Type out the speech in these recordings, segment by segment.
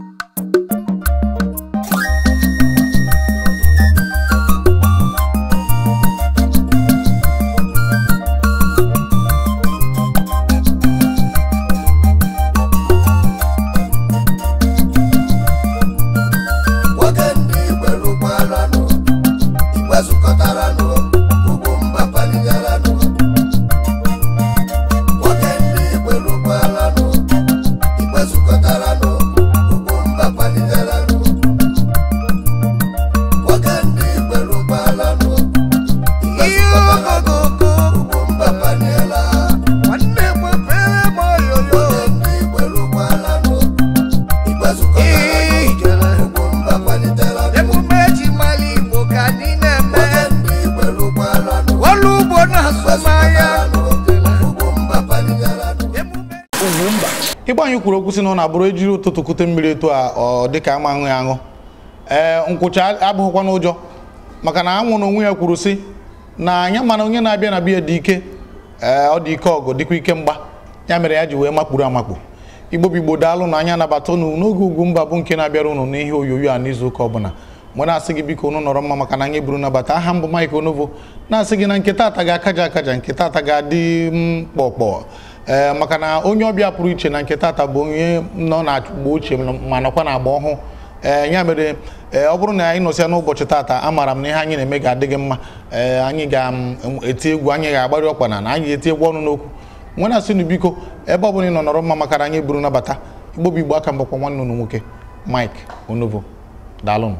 you kwuru okwu si na ọ na-abụrụ ejiri ụtụtụ kute mmiri etu a ọ dịka ama aṅụ ya aṅụ ee nkwụcha abụghịkwa n'ụjọ maka na anwụ na onwe ya kwuru si na anya mana onye na-abịa na biya dị ike ee ọ dị ike ọgụ dịkwa ike mgba ya mere ya ji wee makpuru amakpu igbo bigbo daalụ na anya nabata unu n'oge ugwu mba bụ nke na-abịara ụnụ n'ihe onyonyo a n'izu ụka ọbụla mgbe na-asị gị biko unu nọrọ mma maka na anyị buru nabata aha mbụ Mike Onovo na-asị gị na nke taata ga-akaja akaja nketa ata ga-adị mkpọkpọ ee eh, maka na onye ọbịa pụrụ iche na nke tata bụ onye nọ na mgbe ochie ma nọkwa na agba ọhụụ ee eh, ya mere ee eh, ọ bụrụ na anyị nọsịa n'ụbọchị tata amara m na ihe anyị na-eme ga-adịghị mma ee anyị ga-eti egwu anyị ga agbari ọkwa na na anyị ga-eti egwu ọnụ n'okwu na asị na biko ebe ọ bụla ị nọ nọrọ mma makara anyị buru nabata igbo bụ igbo aka mbakwa nwanne unu nwoke Mike Onovo daalụnụ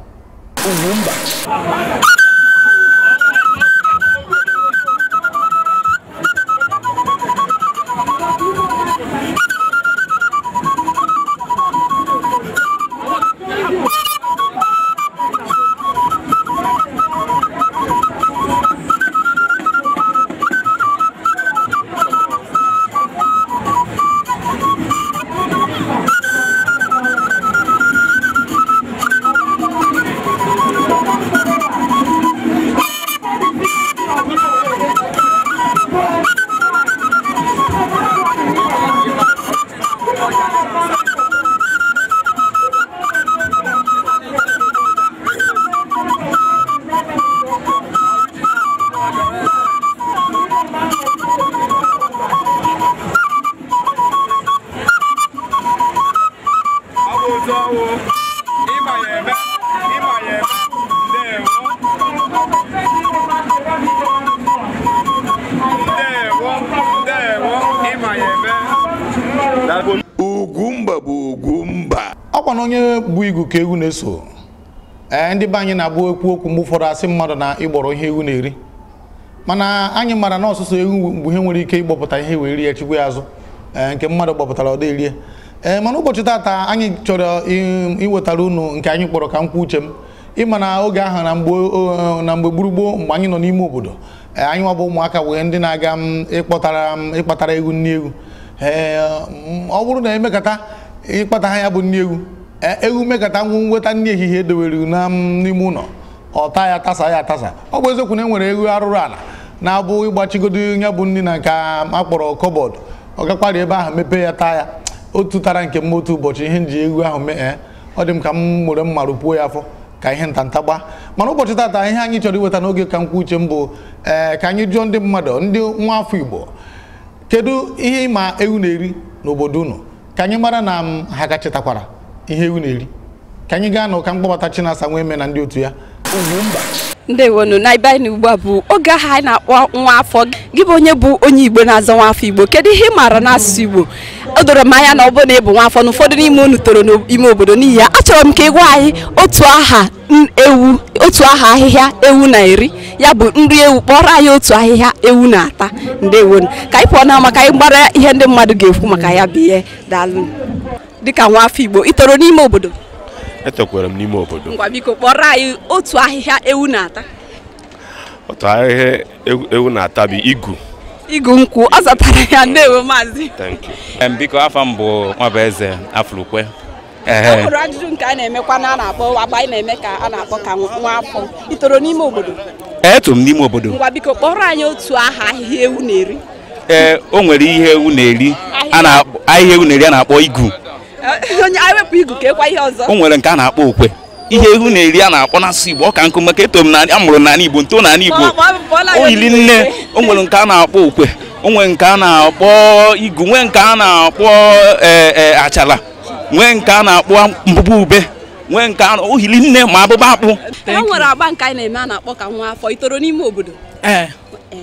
eso ee ndị banyi anyị na-abụ ekwu okwu mgbe ụfọdụ asị mmadụ na ịgbọrọ ihe ewu na-eri mana anyị mara na ọsụsụ ewu mgbe ihe nwere ike ịgbọpụta ihe wee rie chukwu ya azụ nke mmadụ gbọpụtara ọ dị ee mana ụbọchị taata anyị chọrọ iwetara unu nke anyị kpọrọ ka m kwuo uche m ịma na oge ahụ na mgbe gburugburu mgbe anyị nọ n'ime obodo anyị nwa bụ ụmụaka wee ndị na-aga m ịkpọtara m ịkpatara egwu nni egwu ee ọ bụrụ na emekata ịkpata ha ya bụ nni egwu E, ewu mekata nwu nweta nri ehihie edowere n'ime ụlọ ọta ya tasa ya atasa ọ bụ eziokwu na e nwere ewu arụrụ ala na-abụ ịgbachigodo ya bụ nri na nke akpọrọ kọbọdụ ọ gakwara ebe ahụ mepee ya taa ya otu tara nke m otu ụbọchị ihe nji ewu ahụ mee e, ọ dị m ka m were mma rụpuo ya afọ ka ihe ntanta gbaa mana ụbọchị tata ihe anyị chọrọ iweta n'oge ka nkwa uche m bụ ee ka anyị jụọ ndị mmadụ ndị nwa afọ igbo kedu ihe ịma ewu na-eri n'obodo unu ka anyị mara na m ha ka ihe ewu na-eri ka anyị gaa na ụka mkpọbata Chinasa nwee eme na ndị otu ya ndewonu na ibe anyị ugbu a bụ oge aha anyị na-akpọ nwa afọ gị bụ onye bụ onye Igbo na-azọ nwa afọ Igbo kedu ihe ị maara n'asụsụ Igbo o doro m anya na ọ bụrụ na ị bụ nwa afọ n'ime unu toro n'ime obodo n'ihi ya achọrọ m ka ị gwa anyị otu aha ewu otu aha ahịhịa ewu na-eri ya bụ nri ewu kpọrọ anyị otu ahịhịa ewu na-ata ndewonu ka anyị pụọ na maka anyị gbara ihe ndị mmadụ ga-ekwu maka ya bụ ihe daalụ dịka nwa afọ Igbo ị toro n'ime obodo etokwara m n'ime obodo ngwa biko kpọrọ anyị otu ahịhịa ewu na-ata otu ahịhịa ewu na-ata bụ igu igu nkwụ ọ zatara ya ndewo maazị biko afọ m bụ Nwabụeze Afulukwe e hụrụ ajụjụ nke a na-emekwa na a na-akpọ agba anyị na-eme ka a na-akpọ ka nwa afọ ị toro n'ime obodo Etu m n'ime obodo ngwa biko kpọrọ anyị otu aha ahịhịa ewu na-eri ee o nwere ihe ewu na-eri ahịhịa ewu na-eri a na-akpọ igu onye igu e ihe ọzọ. o nwere nke a na-akpọ okwe ihe ihu na-eri a na-akpọ n'asụ Igbo ọka ka nkụ maka eto m na amụrụ n'ala Igbo nto n'ala Igbo oyili nne o nwere nke a na-akpọ okwe o nwere nke a na-akpọ igu nwee nke a na-akpọ e, e, achala nwee nke a na-akpọ mbụbụ ube nwee nke a ohili nne ma abụba akpụ e nwere agba nke anyị na-eme a na-akpọ ka nwa afọ itoro n'ime obodo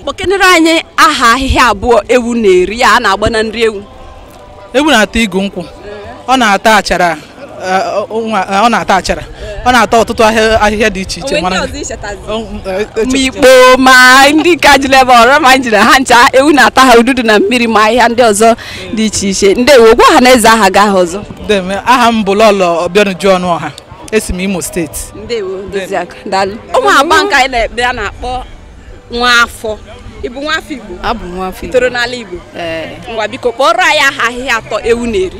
kpọkenere anyị aha ahịhịa abụọ ewu na-eri a na-agba na nri ewu ewu na-ata igu nkwụ ọ na-ata achara eh, eh, ọ na-ata achara ọ na-ata ọtụtụ ahịhịa dị iche iche eh, ma ikpo ma ndị ka ji leba ọrọ ma njiri ha ncha ewu na-ata ha ududu na mmiri ma ahịhịa ndị ọzọ dị iche iche ndị wogwu ọha na eze aha ga aha ọzọ aha m bụ lọlọ ọnụ ọha esi m imo steeti ụmụ agba nke anyị na-ekpe a na-akpọ nwa afọ ịbụ nwa afọ igbo abụ nwa afọ igbo toro n'ala igbo ngwa biko kpọrọ anyị aha ahịhịa atọ ewu na-eri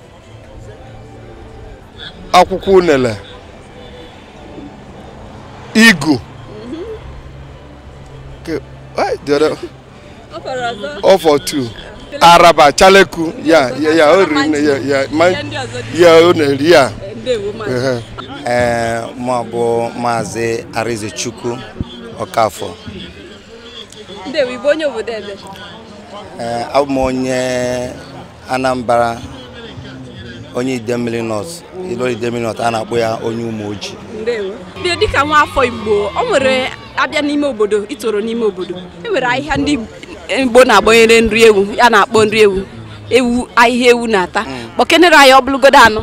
akwụkwọ unele igu ọfọ eh, tu araba chaleku ya ya ya o riri ya ya ya o ya ee eh, eh, ma bụ maazị Arịzechukwu Ọkafọ abụ m onye Anambra onye Idemmili nọọsụ. Ilori Deminot a na-akpọ ya onye ume ojii ndewo. bịa dịka nwa afọ Igbo o nwere abịa n'ime obodo itoro n'ime obodo e nwere ahịhịa ndị Igbo na-agbanyere nri ewu ya na-akpọ nri ewu ewu ahịhịa ewu na-ata mm. kpọkenere anyị ọ bụlụgodo anọ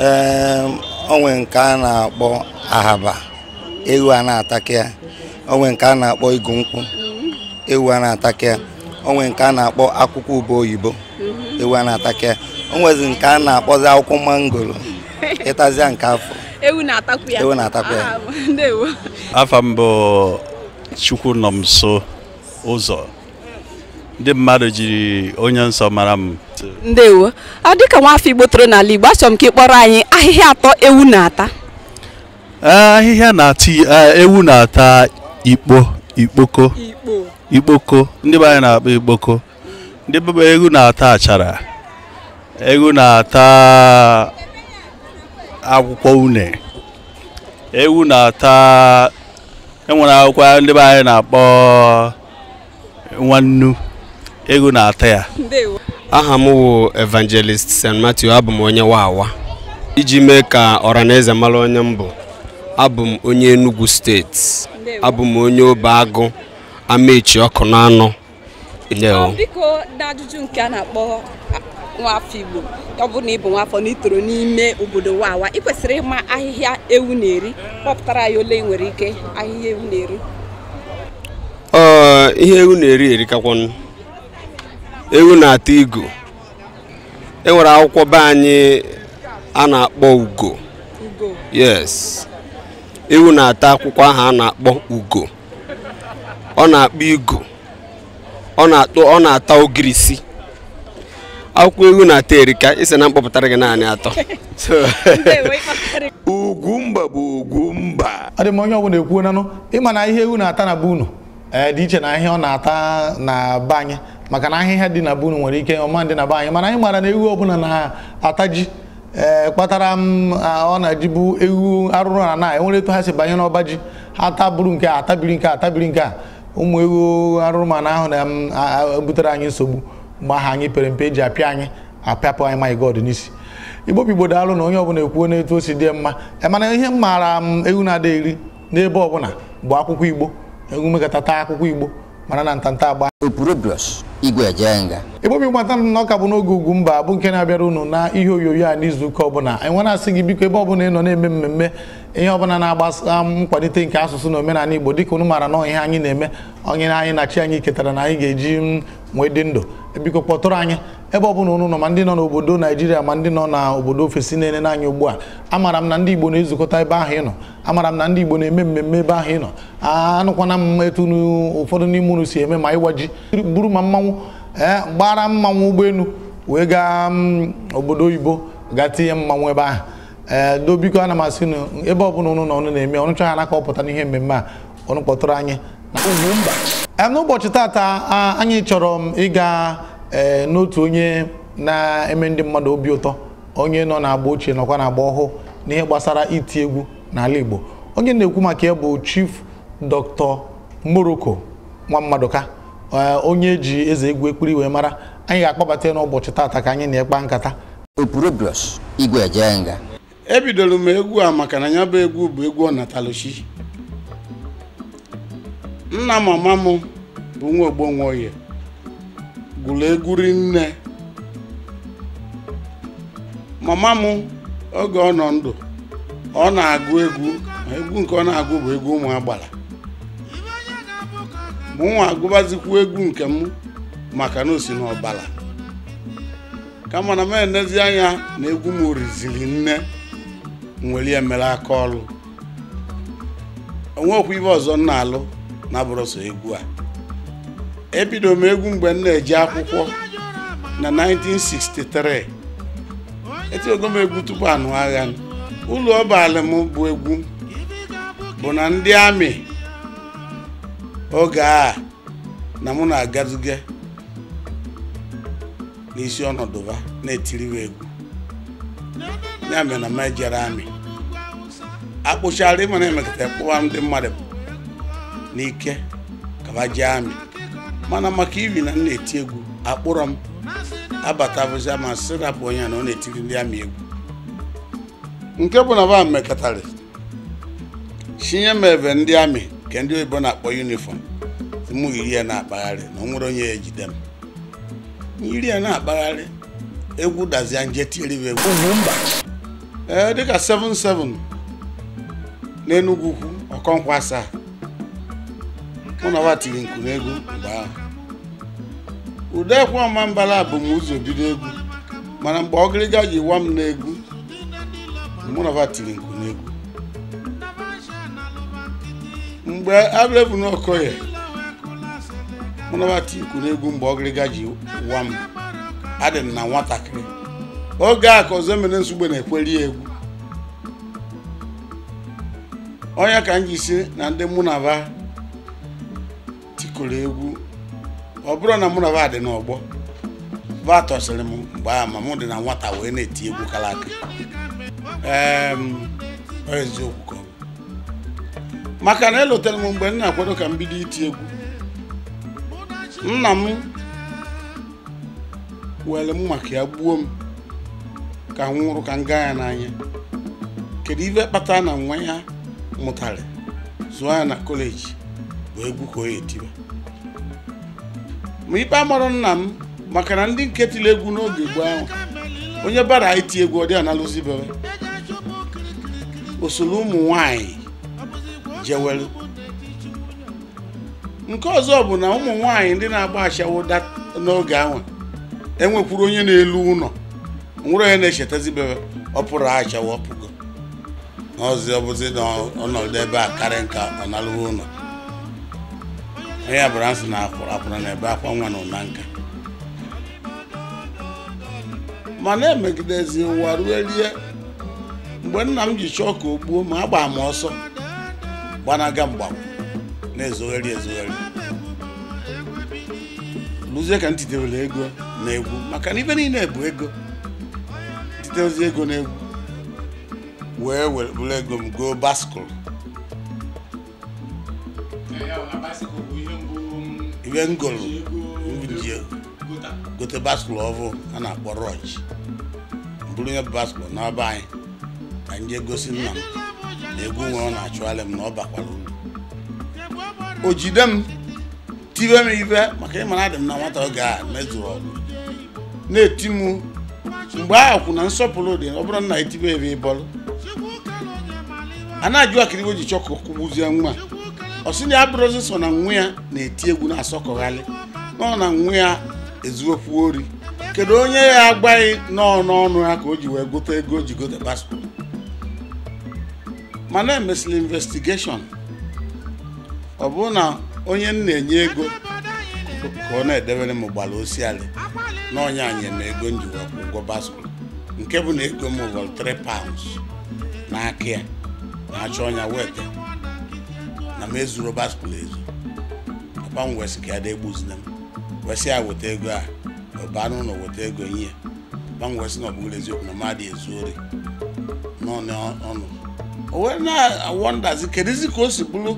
ee ehm, onwe nke a na-akpọ ahaba ewu a na-ataka ya onwe nke a na-akpọ igu nkwụ mm-hmm. ewu a na-ataka ya onwe nke a na-akpọ akwụkwọ ube oyibo mm-hmm. ewu a na-ataka ya onwezi nke a na-akpọzi akwụkwọ mangoro ịtazia nke afọ ewu na-atakwu ya ewu na ya ah, afọ mbụ chukwu nọ m nso ụzọ ndị mmadụ jiri onye nsọ mara m ndewo ọ ka nwaafọ igbo toro n'ala igbo achọ m ka ị kpọrọ anyị ahịhịa atọ ewu na-ata eh, ahịhịa na-ata eh, ewu na-ata ikpo ikpoko ikpoko ndị be anyị na-akpọ ikpoko ndị ewu na-ata achara ewu na-ata akwụkwọ une ewu na-ata enwere akwụkwọ ndị be anyị na-akpọ nwannu ewu na-ata ya aha m wụ evangelist st matthew abụ m onye wawa iji mee ka ọranaeze mara onye m bụ abụ m onye enugu steeti abụ m onye obe agụ amaechi ọkụ n'anụ nwafọ igbo ọ bụrụ na ị bụ nwafọ na itoro n'ime obodo wawa ị kwesịrị ịma ahịhịa ewu na-eri kpọpụtara ya ole nwere ike ahịhịa ewu na-eri ihe ewu na-eri erikakwanụ ewu na-ata igu enwere akwụkwọ be anyị a na-akpọ ugo yes ewu na-ata akwụkwọ ahụ a na-akpọ ugo ọ na-akpọ igu ọ na-ata ogirisi akwụkwọ ewu na-atọ erika isi na mkpọpụtara gị naanị atọ ugwumba bụ ugwumba dị m onye ọbụla ekwuo nanụ ịma na ihe ewu na-ata na bunu unu dị iche na ahịa ọ na-ata na be anyị maka na ahịhịa dị na bunu nwere ike ọma dị na be anyị mana anyị mara na ewu ọbụla na-ata ji kpatara m ọ na-ejibu ewu arụrụ na na enwere etu ha si banye n'ọba ji ha taburu nke a atabiri nke a atabiri nke a ụmụ ewu arụrụ mana ahụ na butere anyị nsogbu mgbe anyị pere mpe ji apịa anyị apịapụ anyị my god n'isi igbo pigbo daalụ na onye ọbụla ekwuo n'etu o si dị mma mana ihe m maara m egwu na-ada eri n'ebe ọbụla bụ akwụkwọ igbo egwu mekọtata akwụkwọ igbo mara na ntanta agba igbo bigbo ata na ọka bụ n'oge ugwu mba bụ nke na-abịara unu na ihe onyonyo a ụka ọbụla enwe na-asị gị biko ebe ọbụla ị nọ na-eme mmemme ihe ọbụla na-agbasa nkwalite nke asụsụ na omenala igbo dịka unu maara na ihe anyị na-eme onye anyị na chi anyị ketara na anyị ga-eji nwee dị ndụ biko kpọtụrụ anyị ebe ọbụla unu nọ ma ndị nọ n'obodo naijiria ma ndị nọ n'obodo ofesi na-enene anyị ugbu a amara m na ndị igbo na-ezukọta ebe ahụ ị nọ amara m na ndị igbo na-eme mmemme ebe ahụ ị nọ anụkwana m etu ụfọdụ n'ime unu si eme ma ịwa ji buru ma mmanwụ ee eh, gbara mmanwụ ụgbọelu wee gaa mm, obodo oyibo gaa tinye mmanwụ ebe ahụ ee eh, dobiko ana m asị ebe ọbụla unu nọ na-eme ọnụcha ha naka ọpụta n'ihe mmemme a ọnụ kpọtụrụ anyị na n'ụbọchị tata anyị chọrọ m ịga e, n'otu onye na-eme ndị mmadụ obi ụtọ onye nọ na-agba ochie nọkwa na-agba ọhụụ n'ihe gbasara iti egwu n'ala Igbo onye na-ekwu maka ya bụ Chief Dr. nwa mmadụka e, onye ji eze egwu ekpuri wee mara anyị ga-akpọbata n'ụbọchị tata ka anyị na-ekpa nkata igwe ebidoro e m egwu a maka na ya bụ egwu bụ egwu ọnataluchi nna mama m bụ nwa Ogbonwoye gụrụ egwuri nne mama m oge ọ nọ ndụ ọ na-agụ egwu egwu nke ọ na-agụ bụ egwu ụmụ agbara mụ nwa agụbazikwu egwu nke m maka na o si n'ọbara kama na m enezi anya na egwu m riziri nne nwere emere mere aka ọrụ okwu ibe ọzọ nna alụ na egwu a ebido m egwu mgbe m na-eji akwụkwọ na 1963 etinyego m egwu tupu anụ agha ụlọ ọbalị m bụ egwu bụ na ndị amị oge a na mụ na-agazuge n'isi ọnọdụba na-etiriwe egwu ya mere na m ejere amị akpụchara ịma na kpụwa ndị mmadụ n'ike kaba amị mana maka iri na m eti egwu akpụrọ m abatabụzia ma sị onye na ọ na-etiri ndị amị egwu nke bụ na ba mekọtara chinye m ebe ndị amị nke ndị oyibo na-akpọ yunifọm mụ yiri ya na-akpagharị na ọ onye ya ejide m ya na-akpagharị egwu dazia nje tiri m egwu ee dịka 77 n'Enugwu ukwu ọkọnkwa asaa mụ na tiri nku n'egwu mgbe ahụ udekwe ọma mbala bụ m ụzọ bido egwu mana mgbe ọgịrịga yiwa m n'egwu mụ na tiri nku n'egwu mgbe abụlebu n'ọkọye mụ na nwa tiri nku n'egwu mgbe ọgịrịga ji wa m adị m na nwatakịrị oge a ka ọzọ mere nsogbu na-ekweri egwu onye ka m ji si na ndị mụ na va kụrụ egwu ọ bụrụ na mụ na va dị n'ọgbọ va tọsịrị m mgbe ama mụ dị na nwata wee na-eti egwu kara aka ehm, eziokwu maka na elotara m mgbe m na-akwado ka m bido iti egwu nna m were m maka ya gbuo m ka m nwụrụ ka m gaa ya n'anya kedu ibe kpata na nwa ya mụtara zụọ ya na kọleji wee egwu ka o ya ma ikpe amarọ nna m maka na ndị nke tiri egwu n'oge gboo ahụ onye bara iti egwu ọ dị analụzibere osoro ụmụ nwanyị jewelu nke ọzọ bụ na ụmụ nwanyị ndị na-agba ashawo n'oge ahụ enwekwuru onye na-elu ụlọ nwere onye na-echetazibere ọ pụrụ ashawo ọpụgo ọzi ọbụzi n'ọnọdụ ebe a karịa nka ọ nalụghị ụlọ ya bụrụ asị na akwụra na ebe akwa nwa nọ na nka na emegidezi ụwa rue rie mgbe nna m ji chọọ ka o gbuo ma a gbaa m ọsọ gbanaga mgba na-ezogheri ezogheri lụzie ka m ego na egwu maka na ibe niile bụ ego titezi ego na egwu wee were bụrụ ego m goo baskụl iwe ndị gote baskụl ọvụ a na-akpọ rọj mbụrụ onye baskụl n'ọba anyị ka m jee gosi nna m na egwu nwe ọ na-achụgharị m na ọ bakwara uru o jide m tibe m ibe maka ịma na adị m na nwata oge a mezuru ọrụ na-eti m mgbe ahụ kwụ na nsọpụrụ dị ọ bụrụ na etibe ebe ịbọrụ a na-ajụ iwe ji chọkụ kwụgbuzie nwa ọsịna ya bụrụzi so na nwa ya na-eti egwu na-asọkọghalị nọ na nwa ya ezuokwu ori kedu onye ya agbaghị nọọ n'ọnụ ya ka o ji wee gote ego o ji gote paspọtụ mana emesịrị investigeshọn ọ bụrụ na onye m na-enye ego ka ọ na-edebere m ụgbala osiali na ọnya anyị na ego m ji wee ụgwọ nke bụ na ego m wụrụ 3 pounds n'aka ya na-achọ ọnya weta na m ezuru Robert Kulezu papa m wesị ka ada egbuzina m wesị ya weta ego a ọba anụ ụlọ weta ego ihe papa m wesị na ọ bụghị eziokwu na mmadụ ezu ori n'ọnụ o wee na-awọndazi kedizi ka o si bụrụ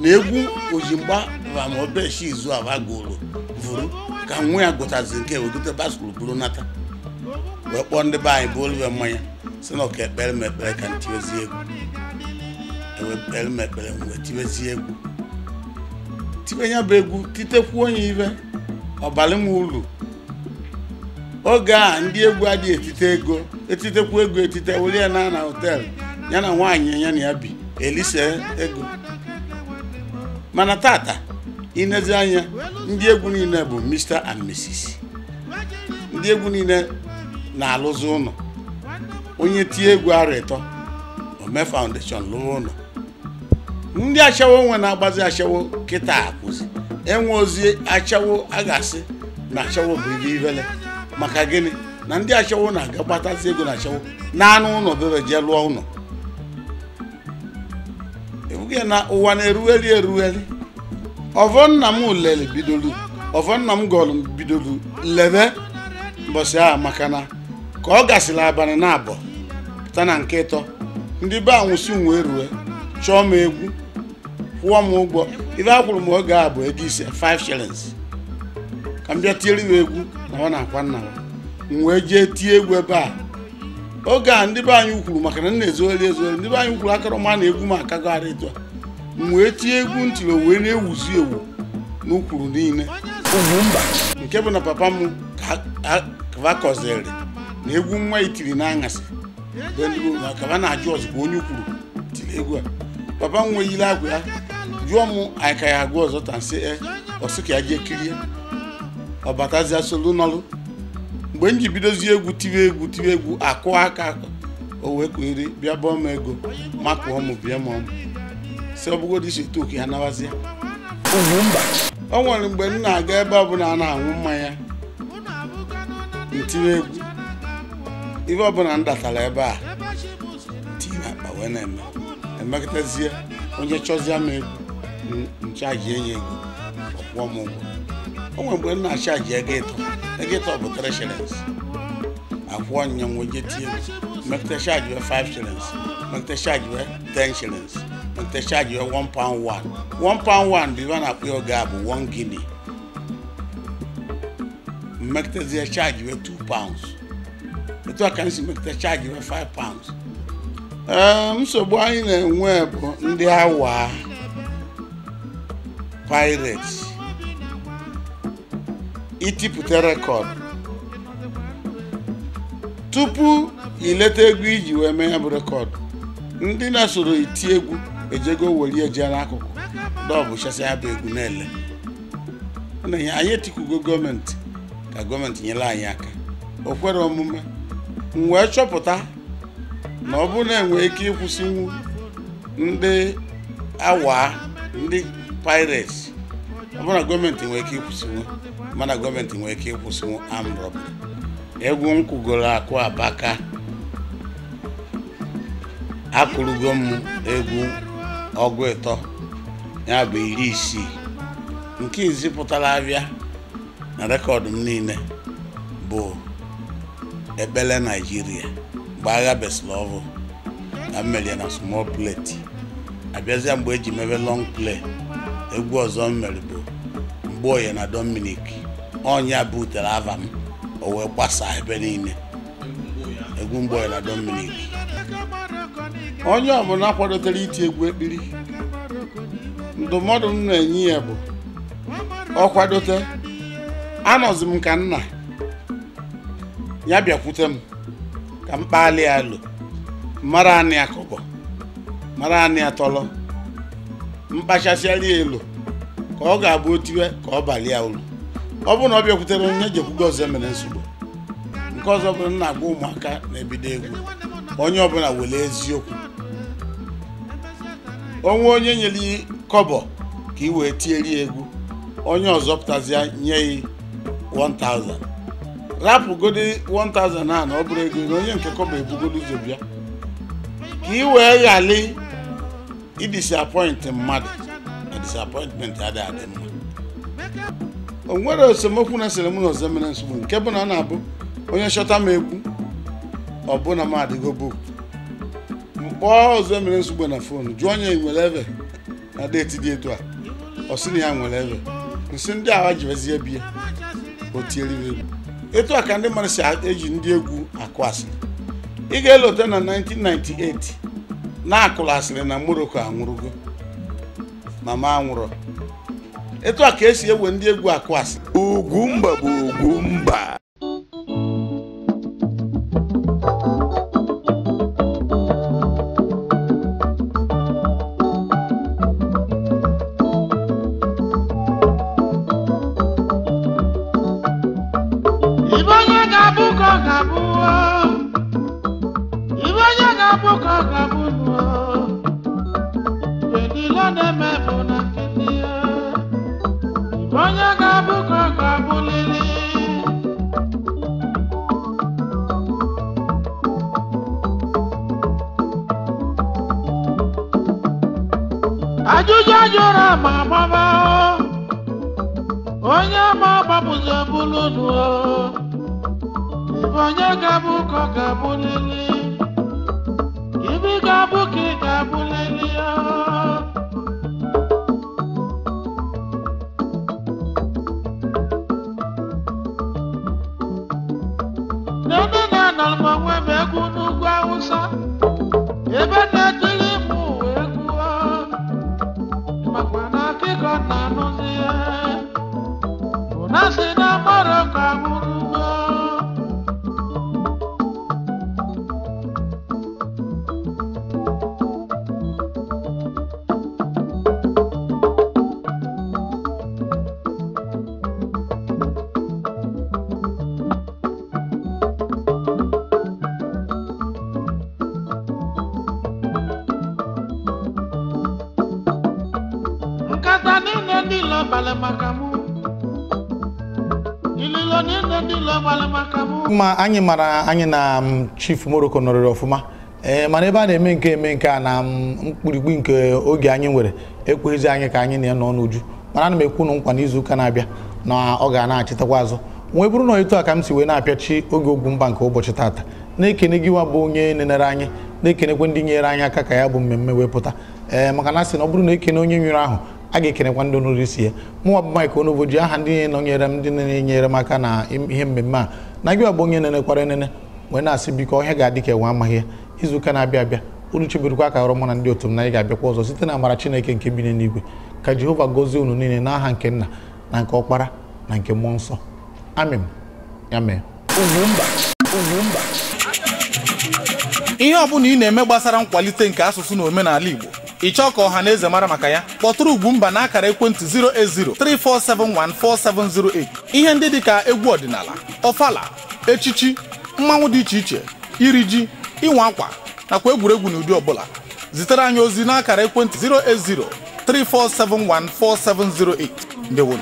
na egwu ojimgba ma ma obeshi izu aba gụrụ vụrụ ka nwa ya gụtazi nke wegote baskul bụrụ nata wee kpọọ ndị be anyị bụ olive mmanya si na ọka ekpere m ekpere ka ntị ozi egwu emekpere m egwu tibe ya bụ egwu titekwuo ya ibe ọbara m uru oge a ndị egwu adịghị etite ego etitekwu ego etite were ya na na họteelụ ya na nwaanyị ya na ya bi elise ego mana tata inezi anya ndị egwu niile bụ Mr and Mrs ndị egwu niile na-alụzi ụlọ onye tie egwu arịtọ ome foundation lụọ ụlọ ndị achawo nwe na-agbazi achawo kịta akwụzi enwe ozi achawo a ga-asị na achawo bụ ihe ivele maka gịnị na ndị achawo na-aga gbatazi ego na achawo anụ ụlọ bebe jee lụọ ụlọ ebughị na ụwa na-erugheri erugheri ọvọ nna m lere bidolu ọvọ nna m gọlụ bidolu lebe mbọsị a maka na ka ọ gasịrị abalị na abụọ pụta na nke ịtọ ndị be anwụsị nwee rue chọọ m egwu kwụọ m ụgwọ ibe a kwụrụ m oge a bụ ego ise 5 shillings ka m bịa tiere m egwu na ọ na-akwa nna m wee jee tie egwu ebe a oge a ndị be anyị kwuru maka na m na-ezogheri ezogheri ndị be anyị kwuru akarọma na egwu m akago ara etu a m wee tie egwu ntiri wee na-ewuzi ewu n'ukwuru niile nke bụ na papa m kavakọziri na egwu nwa itiri e na aṅasị kava na-ajụ ọzọ ka onye kwuru tiri egwu a papa m nweyiri akwa ya jụọ m anyị ka ya agụ ọzọ ta nsị e, ọsị ka ya jee kirie ọbatazia solu n'ọlụ mgbe m ji bidozie egwu tiwe egwu tiwe egwu akụ aka o wee kwere bịa bọọ m ego makụọ m bịa m ọmụ si ọbụgodị isi toku ya nawazie o nwere mgbe m na-aga ebe ọbụla a na-aṅụ mmanya ntiwe egwu ife ọbụla m datara ebe a na akpa wee na-eme emekọtazie onye chọzie m egwu nchaji enye gị ọkwụọ m ụgwọ o nwere mgbe m na-achaji ego ịtọ ego ịtọ bụ 3 shillings akwụọ nya nwoje tie mmekọta chaji wee 5 shillings mmekọta chaji wee 10 shillings mmekọta chaji wee 1 pound 1 1 pound 1 bụ ibe a na-akpọ ya oge a bụ 1 guinea mmekọtazie chaji wee 2 pounds etu a ka m si mmekọta chaji wee 5 pounds nsogbu anyị na-enwe bụ ndị awa pirates itipụta rekọd tupu ileta egwu iji wee mee ya bụ rekọd ndị na-esoro iti egwu ejego were eje n'akụkụ dọbụ chasịa bụ egwu na-ele anyị etikwugo gọọmenti ka gọọmenti nyere anyị aka o kwere omume m wee chọpụta na ọ bụrụ na enwee ike ịkwụsịnwu ndị awa ndị pirates ọbụna gọọmenti nwere ike ịkwụsịnwu mana gọọmenti nwere ike ịkwụsịnwu armed egwu nkwụgoro akụ abaka akụrụgo m egwu ọgụ ịtọ ya bụ iri isii nke izi pụtara abịa na rekọdụ m niile bụ ekpele naijiria mgbe agha beslovo na mmerie na small plate abịazịa mgbe eji mebe long plate. egwu ọzọ m mere bụ onye na Dominic ọnya butere ava m o wee gbasaa ebe niile egwu onye na Dominic onye ọbụla kwadotere iti egwu ekpiri ndụmọdụ m na-enye ya bụ ọ kwadote anọzi m ka nna ya bịakwute m ka m kpalị ya alo mara anị akọbọ mara anị atọlọ mkpachasị ya elu ka ọ ga-abụ otiwe ka ọ balị ya ụlọ ọ bụrụ na ọ bịakwutere onye jekwugo ọzọ e mere nsogbu nke ọzọ bụrụ na agwa ụmụaka na-ebido egwu onye ọbụla were eziokwu onwe onye nyere ya kọbọ ka ị wee tieri egwu onye ọzọ pụtazịa nye ya 1000 rapụgodi 1000 a na ọ bụrụ ego onye nke kọbọ ebugodi ụzọ bịa ka ị wee ghali idisapọịntị mmadụ na disapọịntmentị adịghị adị mma o nwere esemokwu na sịrị m na ọzọ mere nsogbu nke bụ na ọ na-abụ onye chọta m egwu ọbụna m adịgo book mkpọọ ọzọ mere nsogbu na fon jụọ onye nwere ebe na deeti dị etu a ọsị na ya nwere ebe nsị ndị agha jirezie biya o egwu etu a ka ndị mmadụ si eji ndị egwu akụ asị. ị ga-elote na 1998 na akụlasịrị asịrị na Moroko anwụrụgo mama anwụrọ etu a ka esi ewe ndị egwu akụ asịrị ugwumba bụ ugwumba ojújọ́jú ra màmá bá onye ma ọgbapụzi ebulu nu o onye ga-abụ ka ọ ga-abụ lili ibi ga-abụ ka ị ga-abụ lili o mma anyị mara anyị na um, chief Morocco nọrịrị ọfụma ee mana ebe a na-eme nke eme nke a na um, mkpirigbi nke oge anyị nwere ekweghịzi anyị ka anyị na-enọ n'uju mana ana m ekwu unu nkwa n'izu ụka na-abịa na ọ ga na-achịtakwa azụ nwee bụrụ na etu a ka m si wee na-apịachi oge ogwu mba nke ụbọchị tata na-ekene gị bụ onye nenere anyị na-ekenekwa ndị nyere anyị aka ka ya bụ mmemme wee pụta ee maka na sị na ọ bụrụ na ekene onye nwere ahụ a ga-ekenekwa ndị ọnụrụ isi ya mụnwa bụ Mike Onoboji aha ndị nọnyere m ndị na-enyere m aka na ihe mmemme a na gị ọbụ onye nenekwara enene wee na-asị biko ihe ga-adị ka enwe amaghị ya izuụka na-abịa abịa unu cheberikwa ka ọrụ mụ na ndị otu m na anyị ga-abịakwa ọzọ site na amara chineke nke bi n'eluigwe ka jehova gozie unu niile n'aha nke nna na nke ọkpara na nke mmụọ nsọ amen ya mee ihe ọ bụla ị na-eme gbasara nkwalite nke asụsụ na omenala igbo ịchọ ka ọha na eze mara maka ya kpọtụrụ Ugwumba na akara ekwentị 08034714708 ihe ndị dịka egwu ọdịnala ọfala echichi mmanwụ dị iche iche iri ji ịnwa akwa nakwa egwuregwu n'ụdị ọbụla zitere anyị ozi na akara ekwentị 08034714708 ndewo